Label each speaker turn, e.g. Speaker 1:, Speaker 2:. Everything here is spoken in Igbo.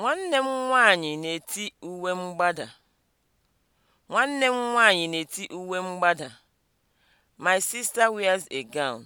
Speaker 1: Nwanne m nwaanyị na-eti uwe mgbada. Nwanne m nwaanyị na-eti uwe mgbada. My sister wears a gown.